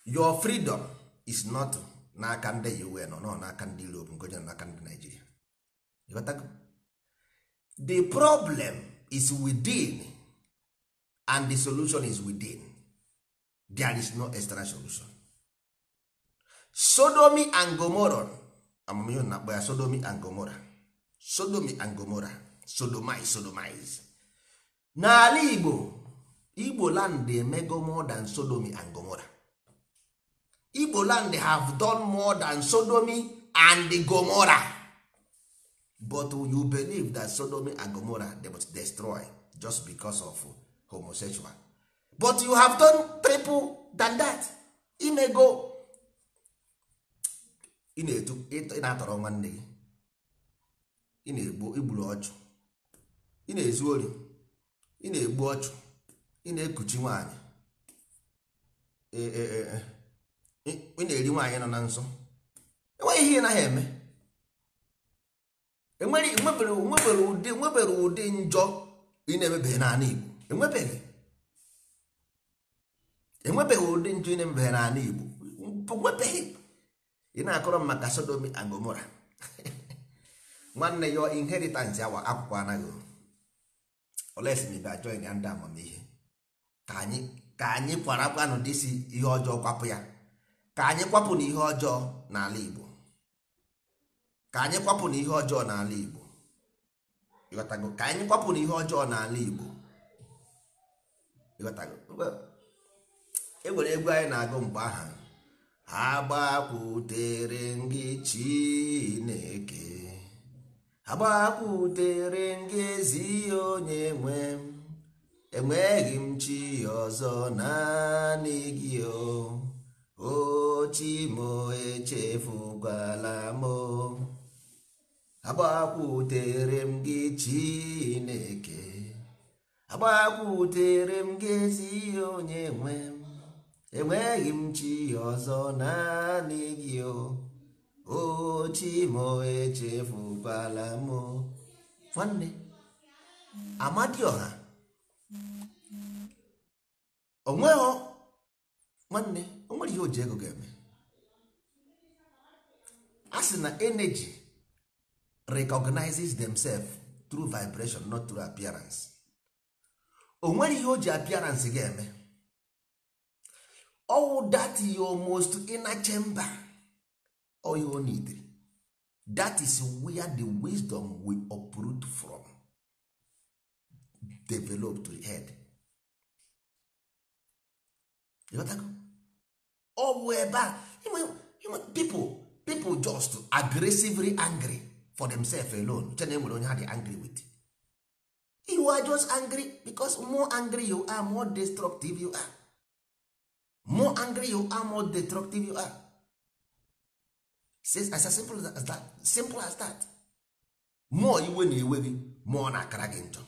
your freedom is not n'aka ndị UN nọ n'aka ndị Europe nke onye n'aka ndị Nigeria the problem is within and the solution is within there is no external solution sodomy and gomorrah amamihe na-akpọ ya sodomy and gomorrah sodomy and gomorrah sodomize sodomize n'ala Igbo Igbo land emego more than sodomi and gomorrah igbo land have done more than sodomy and gomora but you believe that sodomy and gomora they destroy just because of homosexual but you have done triple than that ị na go. ị na-etu ị na-atọrọ nwanne gị ị na-egbu igburu ọchụ ị na-ezu ori ị na-egbu ọchụ ị na-ekuchi nwaanyị e, e, e, ị na-eri nwaanyị nọ na nsọ enweghị ihe ị naghị eme enwebere e e ụdị e nwebere ụdị njọ ị na-emebeghị n'ala Igbo enwebeghị enwebeghị ụdị njọ ị na-emebeghị n'ala Igbo nwebeghị ị na-akọrọ m maka Sodomi and Gomora nwanne ya inheritance awa akwụkwọ anaghị olesmibe join ya ndị amamihe ka anyị ka anyị kwara akwanụ dịsi ihe ọjọọ kwapụ ya ka anyị kwapụ na ihe ọjọọ n'ala Igbo ka anyị kwapụ na ihe ọjọọ n'ala Igbo ịghọtago ka anyị na ihe ọjọọ n'ala Igbo ịghọtago enwere egwu anyị na-agụ mgbe ha agbakwutere ngị ezi onye nwe enweghị m chi ọzọ naanị gị o ochimo echefugala m agbakwutere m gị chineke agbakwutere m gị ezi onye nwe m enweghị m chi ọzọ naanị gị ochimo echefugala m nwanne amadioha onweghị nwanne nwere ihe o ji ego ga-eme a sị na energy recognizes themselves through vibration not through appearance o nwere ihe o ji appearance ga-eme owu that your most inner chamber all you need that is where the wisdom we uproot from develop to the head. ọ bụ ebe a people people just aggressively angry for themselves alone chena enwere onye ha dị angry with you are just angry because more angry you are more destructive you are more angry you are more destructive you are says as simple as that simple as that more iwe na-ewe gị na-akara gị njọ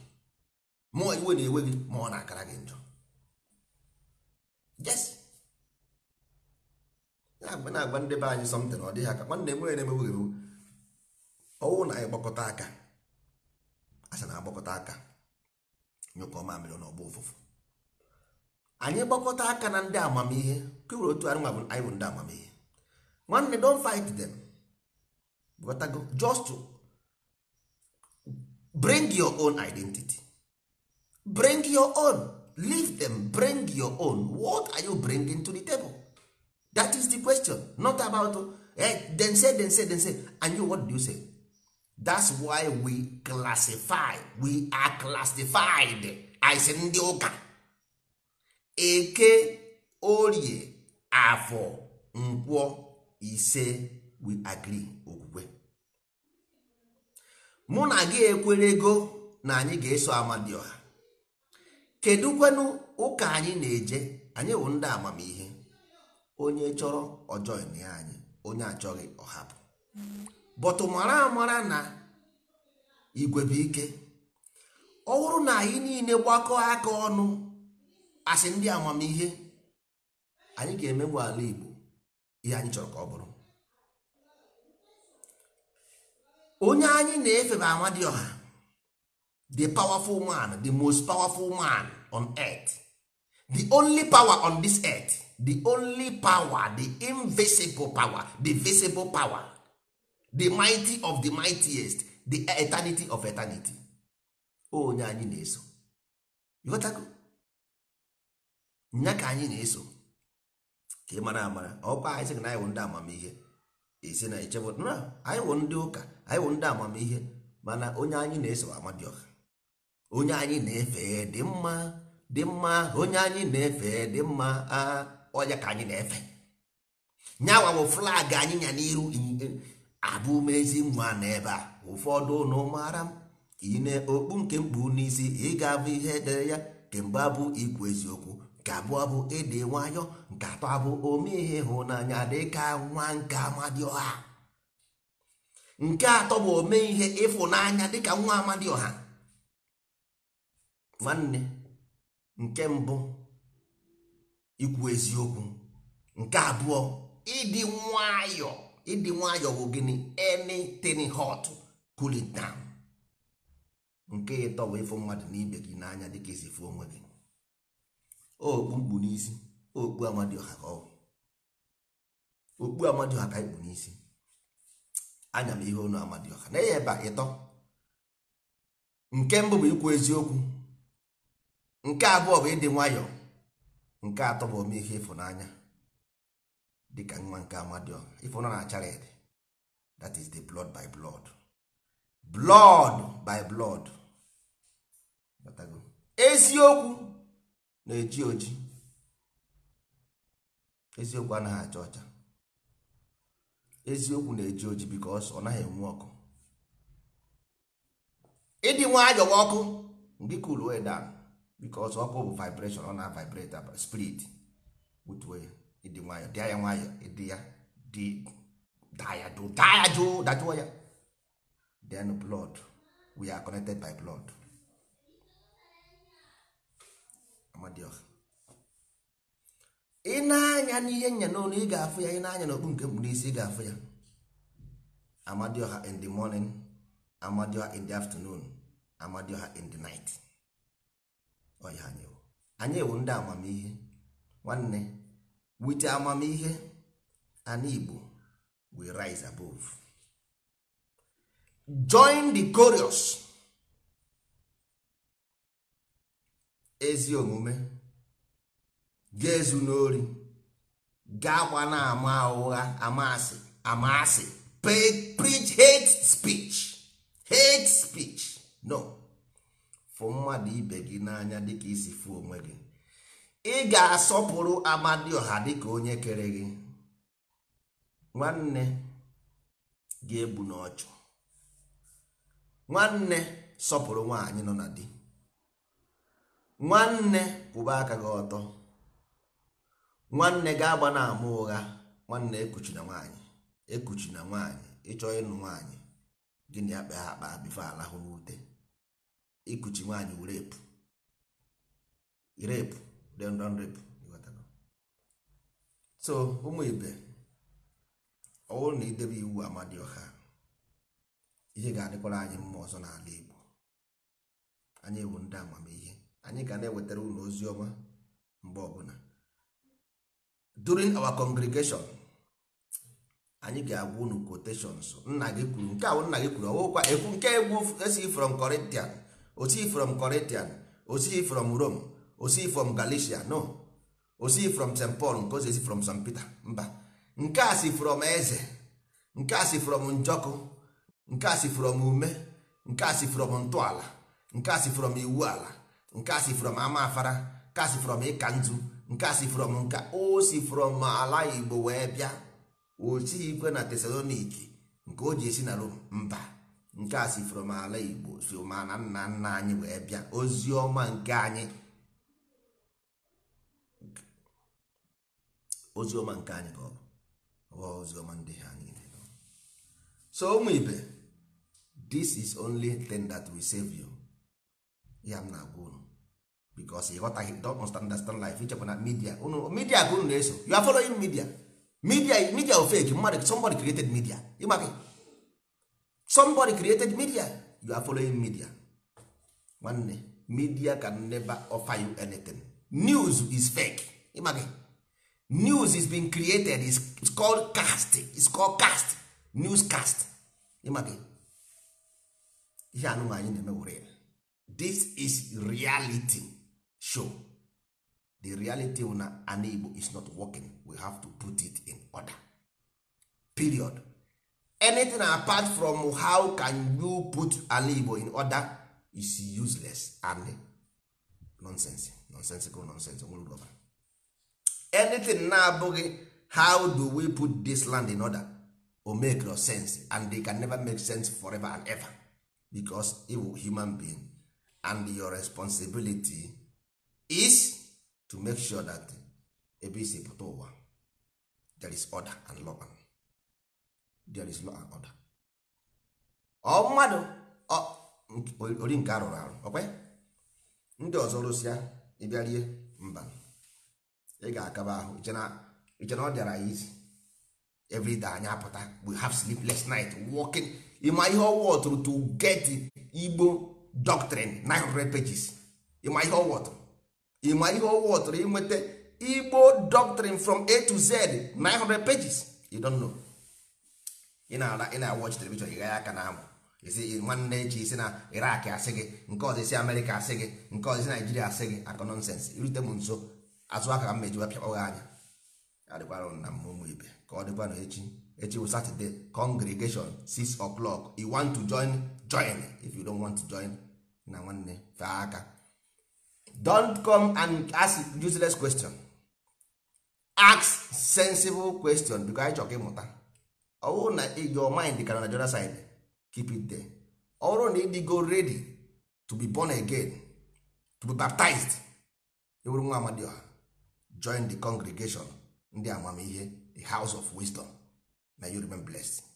more iwe na-ewe gị na-akara gị njọ yes na na agba ndị be anyị something ọ dịghị aka nwanne m onye na-emegbu gị ọwụ na ịgbakọta aka asa na agbakọta aka nyụkọ mamịrị na ọgba ụfụfụ anyị gbakọta aka na ndị amamihe kewere otu anyị nwa anyị bụ ndị amamihe nwanne don fight them just to bring your own identity bring your own leave them bring your own what are you bringing to the table that is the question not about eh, then say then say then say and you what do you say that's why we classify we are classified as ndị ụka eke orie afọ nkwọ ise we agree okwukwe mụ na gị ekwere ego na anyị ga-eso amadioha kedụ kwenu ụka anyị na-eje anyị bụ ndị amamihe onye chọrọ ọjọọ ya anyị onye achọghị ọhapụ bọtụ mara amara na igwe ike ọ bụrụ na anyị niile gbakọọ aka ọnụ asị ndị amamihe anyị ga emegbu ala Igbo ihe anyị chọrọ ka ọ bụrụ onye anyị na-efe bụ Amadioha the powerful man the most powerful man on earth the only power on this earth the only power the invisible power the visible power the mighty of the mightiest the eternity of eternity onye anyị na-eso ịghọtago nya ka anyị na-eso ka ị mara amara ọkwa anyị sị na anyị wụ ndị amamihe isi na echebụ na anyị wụ ndị ụka anyị wụ ndị amamihe mana onye anyị na-eso amadịọha onye anyị na-efe dị mma dị mma onye anyị na-efe dị mma ah. ọnya ka anyị na-efe nyawa bụ flag anyị nya n'iru abụ mezi nwa na ebe a ụfọdụ ụnụ mara m ine okpu nke mkpu n'isi ị ga-abụ ihe edere ya kemgbe abụ ikwu eziokwu nke abụọ bụ ịdị nwayọ nke atọ abụ ome ihe ịhụnanya dịka nwa nke amadioha nke atọ bụ ome ihe ịfụnanya dịka nwa amadioha nwanne nke mbụ ikwu eziokwu nke abụọ ịdị nwayọ ịdị nwayọ bụ gịnị anything hot cool it nke ịtọ bụ ịfụ mmadụ n'ibe gị n'anya dịka esi fụ onwe gị okpu mkpu n'isi okpu amadioha ka ọ okpu amadioha ka ikpu n'isi anya m ihe onu amadioha na ihe ebe ịtọ nke mbụ bụ ikwu eziokwu nke abụọ bụ ịdị nwayọọ. nke atọ bụ ome ihe ịfụnanya dịka nwa nke amadio ịfụnanya na chared that is the blood by blood blood by blood eziokwu na-eji oji eziokwu anaghị acha ọcha eziokwu na-eji oji because ọ naghị enwe ọkụ ịdị nwayọwa ọkụ ndị cool way because ọkụ bụ vibration ọ na-vibrate spirit butuo ya ịdị nwayọ dịa ya nwayọ ịdị ya dị daya jụụ daya jụụ dajụọ ya then blood we are connected by blood amadioha ị na-anya n'ihe nya n'olu ị ga-afụ ya ị na-anya n'okpu nke mkpu n'isi ị ga-afụ ya amadioha in the morning amadioha in the afternoon amadioha in the night ọnya anyị ewu anyị ewu ndị amamihe nwanne wite amamihe ana Igbo we rise above join the chorus ezi omume ga-ezu n'ori ga gba na-ama ụgha amasị amasị preach hate speech hate speech fụ mmadụ ibe gị n'anya dịka isi fụ onwe gị ị ga-asọpụrụ amadioha dịka onye kere gị nwanne ga-egbu n'ọchụ nwanne sọpụrụ nwaanyị nọ na di nwanne kwụba aka gị ọtọ nwanne ga-agba na ama ụgha nwanne ekuchina na nwaanyị ekuchi na nwaanyị ịchọ ịnụ nwaanyị gịnị akpa ha akpa bifo alahụ n'ute ikuchi nwaanyị wụ rep repu so ụmụ ibe ọ na idebe iwu amadioha ihe ga-adịkwara anyị mma ọzọ n'ala Igbo anyị bụ ndị amamihe anyị ga na-ewetara ụlọ ozi ọma mgbe ọbụla during our congregation anyị ga-agwa unu quotations nna gị kwuru nke ahụ nna gị kwuru ọwụkwa ekwu nke egwu esi from Corinthians osi from Corinthian osi from Rome from Galicia no from St Paul nke ozi from St Peter mba nke a si from eze nke a si from njọkụ nke a si from ume nke a si from ntọala nke a si from iwu ala nke a si from ama nke a si from ịka nke a si from nka o si from ala Igbo wee bịa osi ikwe na Tesaloniki nke o ji esi na Rome mba nke a si from ala igbo si ma na nna nna anyị wee bịa ozi ọma nke anyị ozi ọma nke anyị ka ọ ozi ọma ndị ha niile so ụmụ ibe this is only thing that will save you ya m na-agwa unu because ịghọtaghị don't understand life ichekwa na media unu media ka unu na-eso you are following media media media of fake mmadụ somebody created media ịmaghị somebody created media you are following media nwanne media can never offer you anything news is fake ịmaghị news is being created is it's called cast is called cast news cast ịmaghị ihe anụnụ anyị na-eme were this is reality show the reality na ana igbo is not working we have to put it in order period anything apart from how can you put ala igbo in order is useless and nonsense nonsensical nonsense nwerọba anything na-abụghị how do we put this land in order o make no sense and they can never make sense forever and ever because you human being and your responsibility is to make sure that ebe isi pụta ụwa there is order and law and there is law and order ọ mmadụ ori nke arụrụ arụ ọkwa ndị ọzọ rụsịa ịbịa rie mba ị ga-akaba ahụ iche na ọ dịara ya isi everyday anyị apụta we have sleepless night walking ịma ihe ọwụ ọtụrụ to get igbo doctrine 900 pages ịma ihe ọwụ ọtụrụ ịma ihe inweta igbo doctrine from a to z 900 pages you don't know. ị na-ala ị na-awọchi telivishọn ịgha ya aka na amụ isi nwanne echi isi na irak asị gị nke ọzọ isi amerịka asị gị nke ọzọ isi naijiria asị gị akụ nọnsens irute m nso azụ aka ka m mejiwa pịakpọ gị anya adịkwara na ụmụ ibe ka ọ dịkwa na echi echi bụ satọde congregation 6 o'clock you want to join join if you don't want to join na nwanne fee aka don't come and ask useless question ask sensible question because anyị chọrọ ịmụta ọ na na your mind ka na the side keep it there ọ na ịdị go ready to be born again to be baptized ewuru nwa amadioha join the congregation ndị amamihe the house of wisdom na you remain blessed.